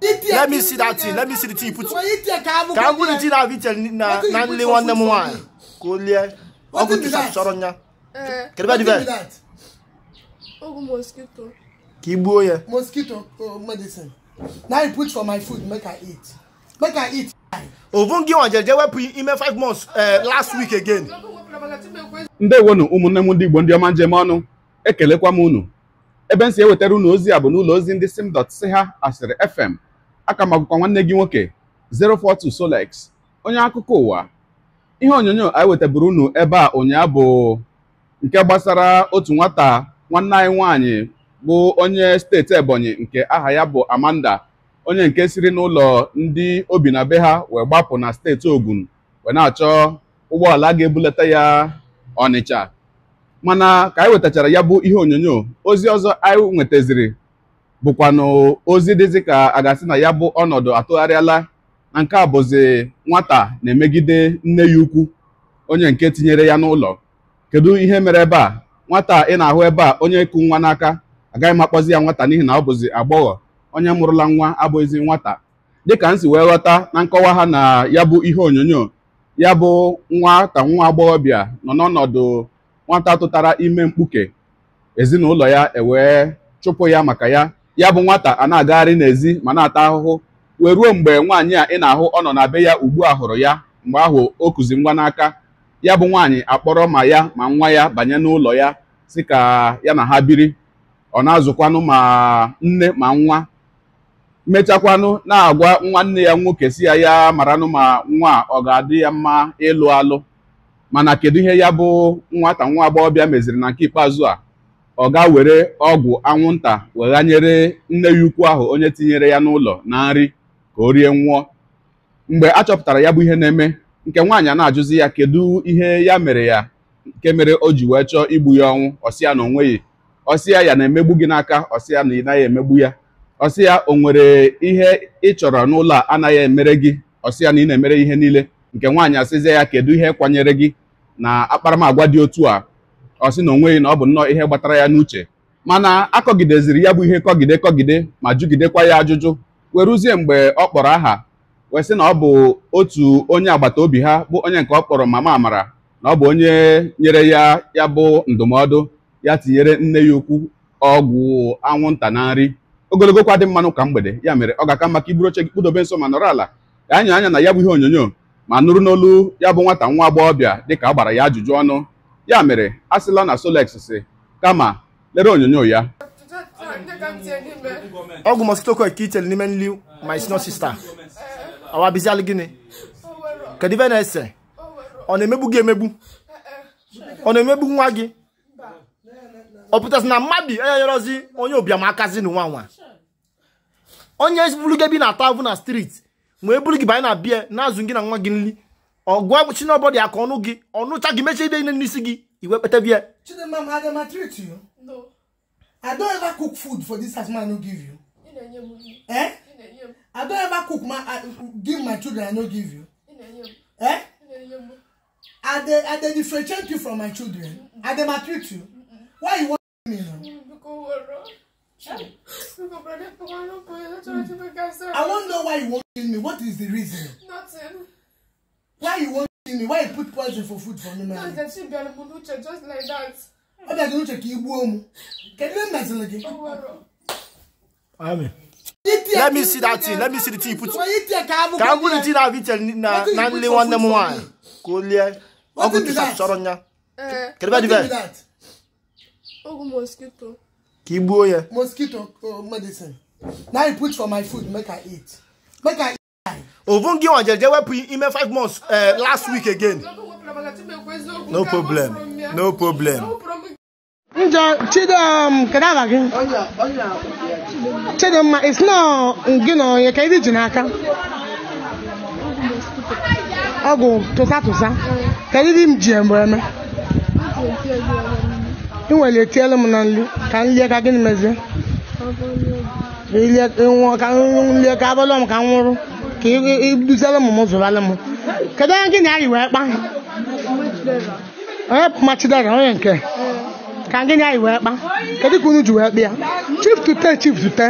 Let me see that thing. Let me see the thing you put. Can I put the thing I've eaten na na only one number one? Kolia. Ogun to Sharonya. Can you do that? Eh. Ogun mosquito. Kibo ya. Mosquito oh, medicine. Now you put for my food make I eat. Make I eat. Ovungi wọn jẹjẹ wẹ́pù ime five months eh, last week again. Ndewo nụ ụmụnne m ndị Igbo ndị ọma njem ọnụ ekelekwa m unu ebe m si ewetara unu ozi a bụ n'ụlọ ozi ndị sim dot siha asịrị fm aka magụkwa nwanne gị nwoke 042 Solex onye akụkọ ụwa ihe onyonyo anyị wetaburu unu ebe a ụnyaahụ bụ nke gbasara otu nwata nwanne anyị nwaanyị bụ onye steeti Ebonyi nke aha ya bụ Amanda onye nke siri n'ụlọ ndị obi na be ha wee gbapụ na steeti Ogun wee na-achọ ụgbọala ga-ebulata ya Ọnịcha mana ka anyị wetachara ya bụ ihe onyonyo ozi ọzọ anyị nwetaziri bụkwanụ ozi dịzị ka a ga-asị na ya bụ ọnọdụ atụgharịala na nke a bụzi nwata na-emegide nne ya ukwu onye nke tinyere ya n'ụlọ kedu ihe mere ebe a nwata ị na-ahụ ebe a onye kụ nwa n'aka agaghị m akpọzi ya nwata n'ihi na ọ bụzi agbọghọ onye mụrụla nwa abụghịzi nwata dịka m si wee ghọta na nkọwa ha na ya bụ ihe onyonyo ya bụ nwata nwa agbọghọbịa nọ n'ọnọdụ nwata tụtara ime mkpuke ezinụlọ ya ewee chụpụ ya maka ya ya bụ nwata a na-agagharị n'ezi ma na-ata ahụhụ wee ruo mgbe nwaanyị a ị na-ahụ ọ nọ na be ya ugbu a hụrụ ya mgbe ahụ o kuzi ngwa n'aka ya bụ nwaanyị akpọrọ ma ya ma nwa ya banye n'ụlọ ya si ka ya na ha biri ọ na-azụkwanụ ma nne ma nwa mechakwanụ na-agwa nwanne ya nwoke si ya ya maranụ ma nwa ọ ga-adị ya mma ịlụ alụ mana kedu ihe ya bụ nwata nwa agbọghọbịa meziri na nke ikpeazụ a ọ ga were ọgwụ anwụnta weghanyere nne ya ukwu ahụ onye tinyere ya n'ụlọ na nri ka o rie nwụọ mgbe a chọpụtara ya bụ ihe na-eme nke nwaanyị a na-ajụzi ya kedu ihe ya mere ya nke mere o ji wee chọọ igbu ya ọnwụ ọsịa na onweghị ọsịa ya na-emegbu gị n'aka ọsịa na ị naghị emegbu ya ọsịa o nwere ihe ị chọrọ n'ụlọ a anaghị emere gị ọsịa na ị na-emere ihe niile nke nwaanyị asịzie ya kedu ihe kwanyere gị na akparamagwa dị otu a ọ sị na onweghị na ọ bụ nnọọ ihe gbatara ya n'uche mana akọgideziri ya bụ ihe kọgide kọgide ma jụgidekwa ya ajụjụ weruzie mgbe ọ kpọrọ aha wee sị na ọ bụ otu onye agbata obi ha bụ onye nke ọ kpọrọ mama amara na ọ bụ onye nyere ya ya bụ ndụmọdụ ya tinyere nne ya ukwu ọgwụ anwụnta na nri ogologo kwa dị mmanụ ka mgbede ya mere ọ ga-aka maka iburu oche gị kpụdobe nso ma nọrọ ala ka anya anya na ya bụ ihe onyonyo ma nụrụ n'olu ya bụ nwata nwa agbọghọbịa ka a gbara ya ajụjụ ọnụ ya mere a sịla na Solex si kama lere onyonyo ya ọgwụ mositoko eke itere n'ime nri my senior sister awa bizialụ gịnị kedu ibe na-ese ọ na-emegbu gị emegbu ọ na-emegbu nwa gị ọ pụtasị na mmadụ enyerozi onye ụbịam akazi na nwa nwa onye buru gị ebe ị na-ata avụ na street wee buru gị banye na bie na-azụ gị na nwa gị nri ọgụ agwụ chinobodi aka ọnụ gị ọnụcha gị mechie ide n'isi gị iwe kpete treat you no i don ever cook food for this house i no give you eh? i don ever cook ma give my children i no give you eh? i dey i dey differentiate you from my children i dey maltreat you why you wan me now. Mm, I wonder why you won't kill me. What is the reason? Nothing why you wan kill me why you put poison for food for me man. because dem see bialimunuche just like that. ọ bịa gịnuche ka i gbuo mụ kedu ihe meziri gị. amen. let me see that thing let me see the thing you put ka m bụrụ the thing na vitel na na nle nwanne m nwaanyị ka o lie ọgwụ tusa chọrọ ya kedu ebe dị be. ọgwụ mosquito. ka i gbuo ya. mosquito oh, medicine na i put for my food make i eat make i. ovu gị nwa jeje wepụ ime 5 months eh, last week again no problem no problem chidimma um, it's not gị na onye ka iji ji n'aka ọgwụ tụsa tụsa ka iri m ji mgbe eme ị nwere etielu m na nri ka nlie ka gịnị mezie ka nlie ka abalị m ka m nwụrụ ka iduziere m m m kedu onye gịnị na anyị wee kpa onye ga onye nke ka gị na anyị wee kpa kedu ka unu ji wee kpa ya chief tute chief tute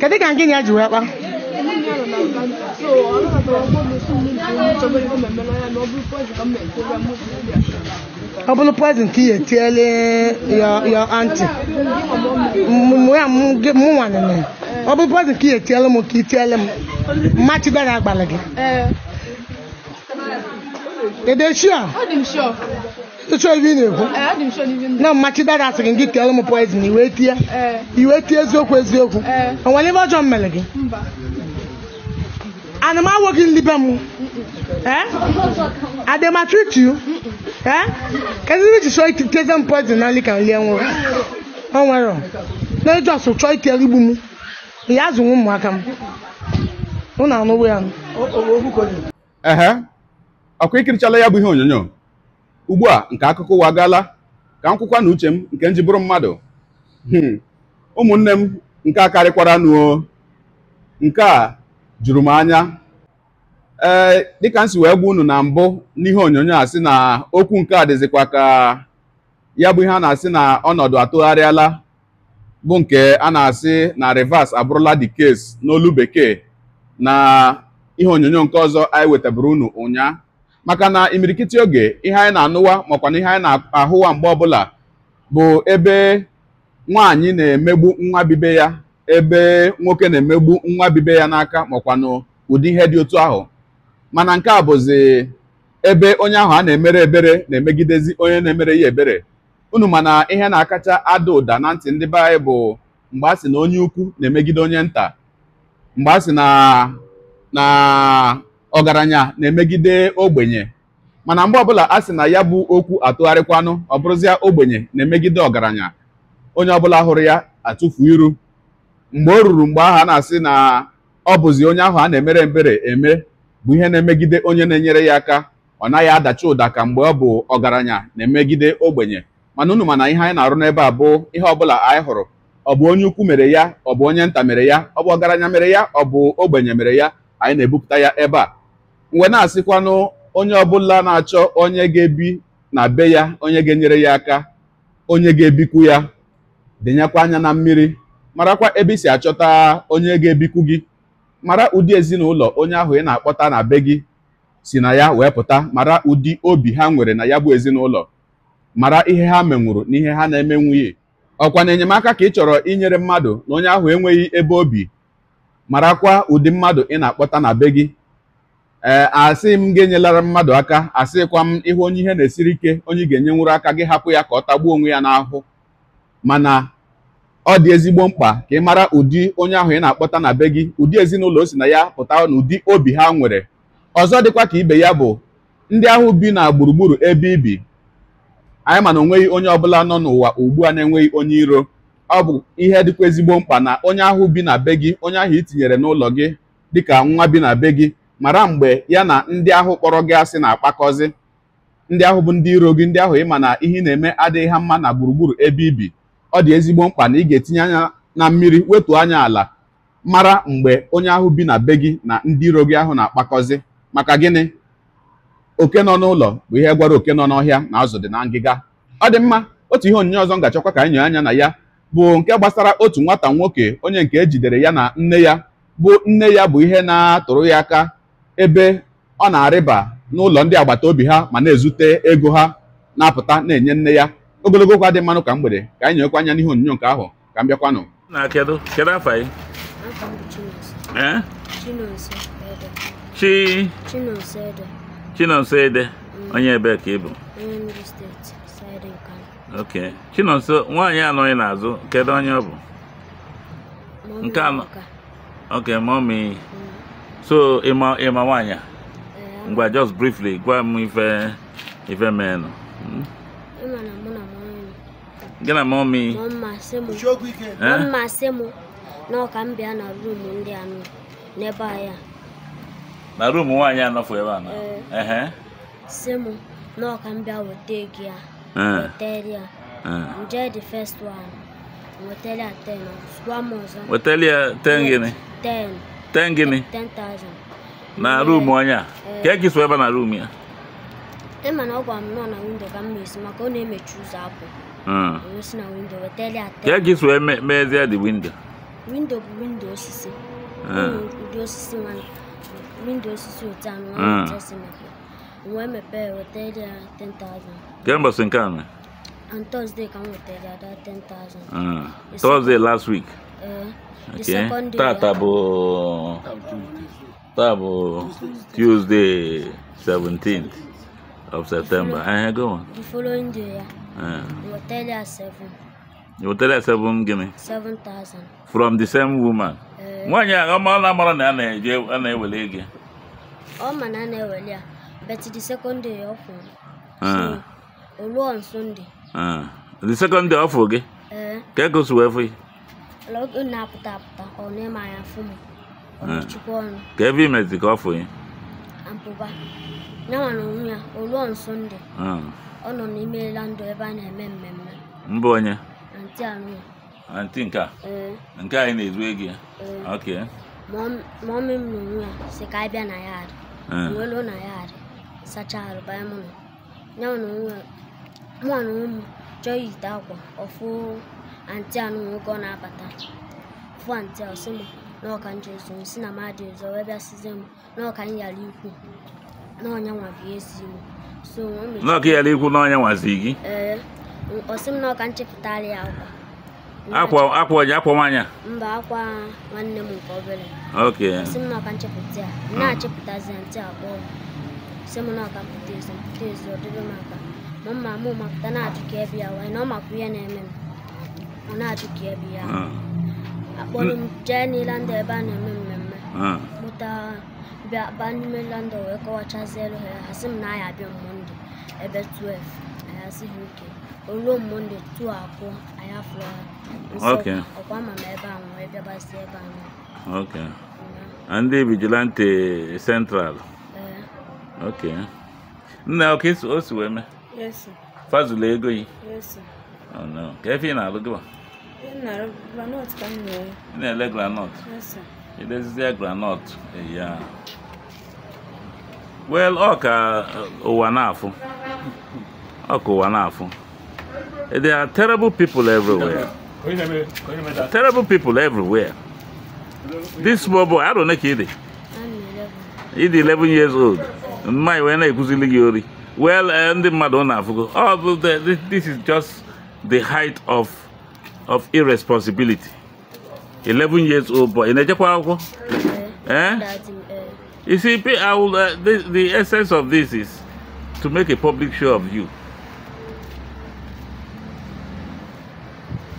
kedu ka gị na ya ji wee kpa ọ bụrụ prezent ka etiele m mmachido ya agbala gị ịchọ ibe ị na-ekwu na mmachido asịrị gị kere m poizin iwe tie iwe tie eziokwu eziokwu o nwere ebe ọjọọ mere gị ana m awụghị nlibe m adematritu kedu ebe iji chọọ iteze m poison na nri ka nri enwere o nwere na ejọs chọọ tell igbu m has azụ ụmụaka m ụnụ anụwo ya ehe ọkụ ikirichala ya bụ ihe onyonyo ugbu a nke akụkọ ụwa gaala ka m kwụkwa na uche m nke m ji bụrụ mmadụ hmm. ụmụnne m nke a karịkwara nuo nke a juru m anya ee dịka m si wee gwa unu na mbụ n'ihe onyonyo a sị na okwu nke a dịzikwa ka ya bụ ihe a na-asị na ọnọdụ atụgharịala bụ nke a na-asị na reverse abụrụla the case n'olu bekee na ihe onyonyo nke ọzọ anyị wetabụrụ unu ụnyaa maka na imirikiti oge ihe anyị na-anụwa makwa na ihe anyị na-ahụwa mgbe ọbụla bụ ebe nwaanyị na-emegbu nwa bibe ya ebe nwoke na-emegbu nwa bibe ya n'aka makwanụ ụdị ihe dị otu ahụ mana nke a bụzi ebe onye ahụ a na-emere ebere na-emegidezi onye na-emere ya ebere unu mana ihe na-akacha ada ụda na ntị ndị be anyị bụ mgbe a sị na onye ukwu na-emegide onye nta mgbe a sị na na ọgaranya na-emegide ogbenye mana mgbe ọbụla a sị na ya bụ okwu atụgharịkwanụ ọ bụrụzịa ogbenye na-emegide ọgaranya onye ọbụla hụrụ ya atụfu iru mgbe o ruru mgbe ahụ a na-asị na ọ bụzi onye ahụ a na-emere mbere eme bụ ihe na-emegide onye na-enyere ya aka ọ naghị adachi ụda ka mgbe ọ bụ ọgaranya na-emegide ogbenye mana unu mana ihe anyị na-arụ n'ebe a bụ ihe ọbụla anyị hụrụ ọ bụ onye ukwu mere ya ọ bụ onye nta mere ya ọ bụ ọgaranya mere ya ọ bụ ogbenye mere ya anyị na-ebupụta ya ebe a mgbe na-asịkwanụ onye ọbụla na-achọ onye ga-ebi na be ya onye ga-enyere ya aka onye ga-ebikwu ya dịnyekwa anya na mmiri marakwa ebe i si achọta onye ga-ebikwu gị mara ụdị ezinụlọ onye ahụ ị na-akpọta na be gị si na ya wee pụta mara ụdị obi ha nwere na ya bụ ezinụlọ mara ihe ha menwuru na ihe ha na-emenwughị ọkwa na enyemaka ka ị chọrọ inyere mmadụ na onye ahụ enweghị ebe obi marakwa ụdị mmadụ ị na-akpọta na be gị ee asị m gị enyelara mmadụ aka asịkwa m ịhụ onye ihe na-esiri ike onye ga nwụrụ aka gị hapụ ya ka ọ tagbuo onwe ya n'ahụ mana ọ dị ezigbo mkpa ka ị mara ụdị onye ahụ ị na-akpọta na be gị ụdị ezinụlọ o si na ya pụta na ụdị obi ha nwere ọzọ dịkwa ka ibe ya bụ ndị ahụ bi na gburugburu ebe ibi anyị ma na onweghị onye ọbụla nọ n'ụwa ugbu a na-enweghị onye iro ọ bụ ihe dịkwa ezigbo mkpa na onye ahụ bi na be gị onye ahụ itinyere n'ụlọ gị dịka nwa bi na be gị mara mgbe ya na ndị ahụ kpọrọ gị asị na-akpakọzi ndị ahụ bụ ndị iro gị ndị ahụ ịma na ihe na-eme adịghị ha mma na gburugburu ebe ibi ọ dị ezigbo mkpa na ị ga-etinye anya na mmiri wetuo anya ala mara mgbe onye ahụ bi na be gị na ndị iro gị ahụ na-akpakọzi maka gịnị oke nọ n'ụlọ bụ ihe gwara oke nọ n'ọhịa na azụ dị na ngịga ọ dị mma otu ihe onyinye ọzọ ngachọkwa ka anyị anya na ya bụ nke gbasara otu nwata nwoke onye nke ejidere ya na nne ya bụ nne ya bụ ihe na-atụrụ ya aka ebe ọ na-arịba n'ụlọ ndị agbata obi ha ma na-ezute ego ha na-apụta na-enye nne ya ogologo okwu dị mmanụ ka mgbede ka anyị nyekwa anya n'ihe onyinye nke ahụ ka m bịakwanụ Chinonso Ede onye ebe ka ị bụ ok Chinonso nwaanyị anọ ị na-azụ kedụ onye ọ bụ nke anọ ok mọmi mm. so ịma ịma nwaanyị a eh, ngwa just briefly gwa m ife ife meenụ hmm? gị na mma m na ọka m bịa na ndị anọ n'ebe na ruumu nwaanyị anọfụ eh. eh. eh. ebe a na si e m na ọka ya ya 10 na ọzọ 10 10 na ruumu onye a ka eke so ebe na ruumu ya na nọ na windo ka m esi maka ọ na-emechi ụzọ si na windo ya ka so mezie dị windo windo bụ windo osisi ụdị osisi nwanyị windo osisi mm. When my nwa emepee wetara ya 10,000 kemgbe in nke On thursday ka m wetara ada 10,000 mm. thursday last week uh, okay. tata bụ taa tuesday 17th of september I uh-huh, go on the following day ya wetara ya 7 you wetara ya 7 gịnị 7,000 from the same woman Eh. nwaanyị a, ọ na amara na a na-ewele ego ọ ma na a na-ewele ya but the second day ọ fụrụ ah. o ruo on Sunday ah. the second day ọ fụ gị eh. ka ego si wee fụ ya ọ na-apụta apụta ọ na-eme anya fụ m ah. ka ebe imezi ka ọ fụ ya abụba nyanwa na onwe ya o ruo on Sunday ọ nọ n'ime landụ ebe a na-eme mmemme mbụ onye anti anụ ya anti nke a mm. nke anyị na-ezu ego ya mm. ok mọmị m na onwe ya si ka anyị bịa na yard mm. welu na yard sacha arụ banye m nọ ya na onwe mụ na onwe m chọọ iyite akwa ọfụ anti anụ nwoke ọ na-abata fụ anti a sị m na ọka nje ụzọ si na mmadụ ụzọ wee bịa sizie m na ọka m yara ikwu na ọnya nwa bụ ezi m so n'ọka yara ikwu na ọnya nwazi gị ee ọsị m na ọka nchepụtara ya akwa akwa akwa onye akwa nwanyị mba akwa nwanne m nke obere ok si m maka nchepụta ya m na ya ah. ntị akpọ si m na ọka mpụta ezi mpụta ezi ọ m mma na-ajụ ya wee na ọ ebe ya ah. a na-eme mmemme ah. mụta bịa wee ha m na ya abịa ebe 12 ha ruo monde tuo akụ anyị afọ ọkụ ama m ebe ahụ wee bịabasị ebe ahụ. a ndị vigilante central eh. ok nna ọka o si wee mee fazụla ego yi oh, ka efe ị na-alụ gịwa ị na-ele granọt idezizie granọt ya ọ ka eh, ụwa na-afụ ọ ka ụwa na-afụ There are terrible people everywhere. Terrible people everywhere. This small boy, I don't know Kidi. He's 11 years old. My when I kuzili Well, and the Madonna Oh, this is just the height of of irresponsibility. 11 years old boy. In a Eh? You see, I will, uh, the, the essence of this is to make a public show of you.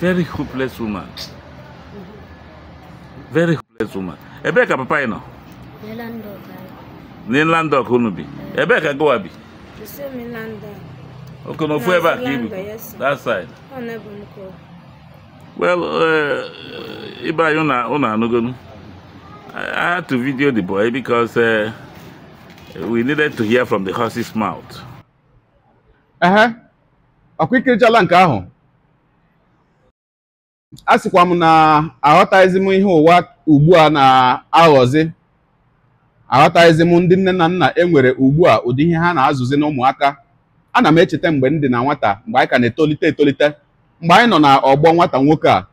very hopeless woman very hopeless woman ebee ka papa ị nọ n'inland ọk unu bi ebee ka gowa bi oke n'ofu ebe a ka ibi that side oh, well uh, Iba anyị unu anụgonu I had to video the boy because uh, we needed to hear from the horse's mouth. Uh huh. A ikirichala challenge, ahụ a sịkwa m na aghọtaghịzi m ihe ụwa ugbu a na-aghọzi aghọtaghịzi m ndị nne na nna e nwere ugbu a ụdị ihe ha na-azụzi na ụmụaka ana m echeta mgbe m dị na nwata mgbe anyị ka na-etolite etolite mgbe anyị nọ na ọgbọ nwata nwoke a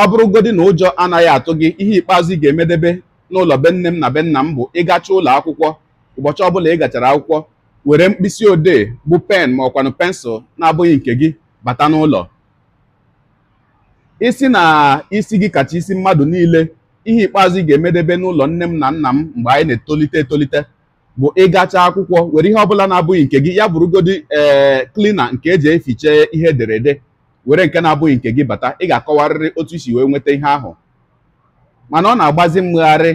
ọ bụrụgodi na ụjọ anaghị atụ gị ihe ikpeazụ ị ga-emedebe n'ụlọ be nne m na be nna m bụ ịgacha ụlọ akwụkwọ ụbọchị ọbụla ị gachara akwụkwọ were mkpịsị odee bụ pen ma ọkwanụ pensụl na-abụghị nke gị bata n'ụlọ isi na isi gị kacha isi mmadụ niile ihe ikpeazụ ị ga-emedebe n'ụlọ nne m na nna m mgbe anyị na-etolite etolite bụ ịgacha akwụkwọ were ihe ọbụla na-abụghị nke gị ya bụrụgodi ee eh, klina nke eji eficha ihe ederede were nke na-abụghị nke gị bata ị ga-akọwarịrị otu isi wee nweta ihe ahụ mana ọ na-agbazi mmegharị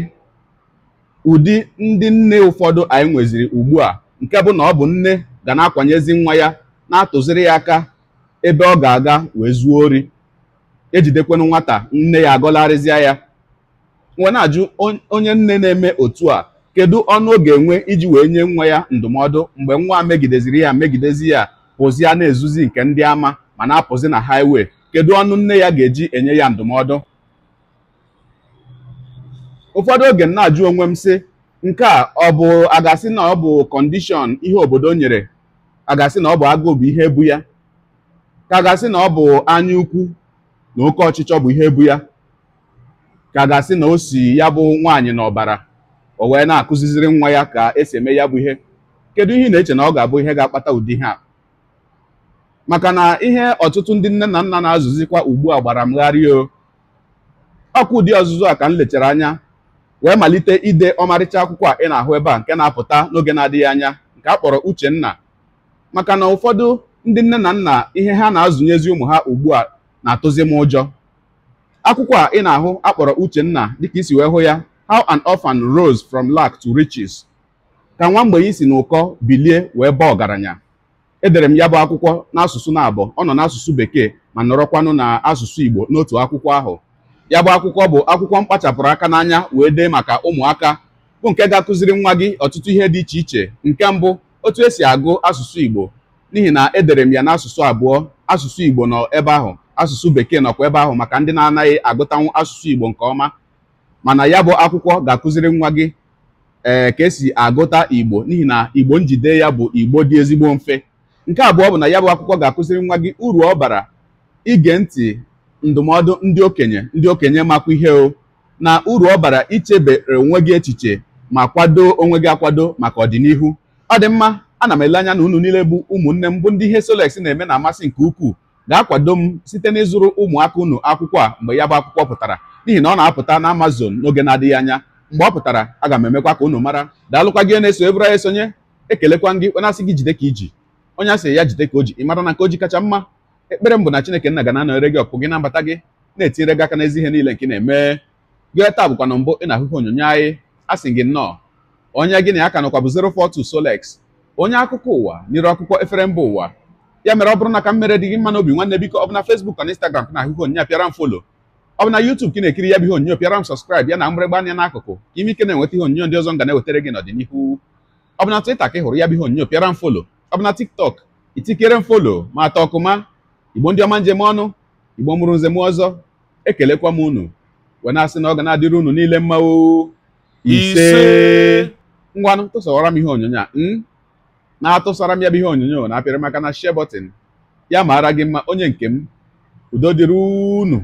ụdị ndị nne ụfọdụ anyị nweziri ugbu a nke bụ na ọ bụ nne ga na-akwanyezi nwa ya na-atụziri ya aka ebe ọ ga-aga wee zuo ori ejidekwenụ nwata nne ya agọlarịzịa ya nwe na-ajụ onye nne na-eme otu a kedu ọnụ ọ ga-enwe iji wee nye nwa ya ndụmọdụ mgbe nwa megideziri ya megidezi ya pụzia na-ezuzi nke ndị ama ma na-apụzi na haiwe kedu ọnụ nne ya ga-eji enye ya ndụmọdụ ụfọdụ oge m na-ajụ onwe m sị nke a ọ bụ agasị na ọ bụ kọndishọn ihe obodo nyere agasị na ọ bụ agụụ bụ ihe bu ya ka agasị na ọ bụ anya ukwu na oke ọchịchọ bụ ihe bụ ya ka ga-asị na o si ya bụ nwaanyị n'ọbara o wee na-akụziziri nwa ya ka esi eme ya bụ ihe kedu ihe ị na-eche na ọ ga-abụ ihe ga-akpata ụdị ihe a maka na ihe ọtụtụ ndị nne na nna na-azụzikwa ugbu a gbara mgharị o ọkụ ụdị ọzụzụ a ka m lechara anya wee malite ide ọmarịcha akwụkwọ a ị na-ahụ ebe a nke na-apụta n'oge na-adịghị anya nke a kpọrọ Uchenna maka na ụfọdụ ndị nne na nna ihe ha na-azụnyezi ụmụ ha ugbu a na-atụzi m ụjọ akwụkwọ a ị na-ahụ akpọrọ Uchenna dịka isi wee hụ ya How an Orphan Rose from Lack to Riches ka nwa mgbenye si n'ụkọ bilie wee baa ọgaranya edere m ya bụ akwụkwọ n'asụsụ na-abọ ọ nọ n'asụsụ bekee ma nọrọkwanụ na asụsụ Igbo n'otu akwụkwọ ahụ ya bụ akwụkwọ bụ akwụkwọ mkpachapụrụ aka n'anya wee dee maka ụmụaka bụ nke ga-akụziri nwa gị ọtụtụ ihe dị iche iche nke mbụ otu esi agụ asụsụ Igbo n'ihi na edere m ya n'asụsụ abụọ asụsụ Igbo nọ ebe ahụ asụsụ bekee nọkwa ebe ahụ maka ndị na-anaghị agụtanwu asụsụ igbo nke ọma mana ya bụ akwụkwọ ga-akụziri nwa gị ee eh, ka esi agụta igbo n'ihi na igbo njide ya bụ igbo dị ezigbo mfe nke abụọ bụ na ya bụ akwụkwọ ga-akụziri nwa gị uru ọ bara ige ntị ndụmọdụ ndị okenye ndị okenye makwa ihe o na uru ọ bara ichebe onwe gị echiche ma kwado onwe gị akwado maka ọdịnihu ọ dị mma ana m ele anya na unu niile bụ ụmụnne m bụ ndị ihe Solex na-eme na-amasị nke ukwuu ga-akwado m site n'ịzụrụ ụmụaka unu akwụkwọ a mgbe ya bụ akwụkwọ pụtara n'ihi na ọ na-apụta na Amazon n'oge na-adịghị anya mgbe ọ pụtara aga m emekwa ka unu mara daalụkwa gị na-eso ebụra ya esonye ekelekwa gị onye asị gị jide ka iji onye asị ya jide ka o ji ị mara na nke o ji kacha mma ekpere m bụ na Chineke nna ga na gị ọkpụ gị na mbata gị na-etinyere gị aka n'ezi ihe niile nke na-eme gị taa bụkwa na mbụ ị na-ahụhụ onyonyo anyị asị gị nnọọ onye gị na ya ka nọkwa bụ 042 Solex onye akụkọ ụwa n'iru akwụkwọ efere mba ụwa ya mere ọ bụrụ na ka m mere dị gị mma n'obi nwanne biko ọ bụ na Facebook na Instagram na-ahụ apịara m folo ọ bụ na YouTube ka ị na-ekiri ya bụ ihe onyonyo pịara m subscribe ya na mgbịrịgba anya n'akụkụ ka ime ike na-enweta ihe onyonyo ndị ọzọ ga na-ewetara gị n'ọdịnihu ọ bụ na Twitter ka ị hụrụ ya bụ ihe onyonyo pịara m folo ọ bụ na TikTok itikere m folo ma atọ ọkụma igbo ndị ọma njem ọnụ igbo mụrụ nze m ọzọ ekelekwa m unu wee na-asị na ọ ga na-adịrị unu niile mmanwụ ise ngwanụ tụsawara m ihe onyonyo a hmm? na-atụsara m ya bụ ihe onyonyo na-apịrị maka na share bọtịn ya maara gị mma onye nke m udo dịrị unu